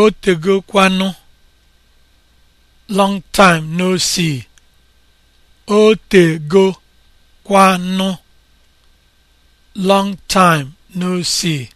O tegokwanụ long time no see. O tegokwanụ long time no see.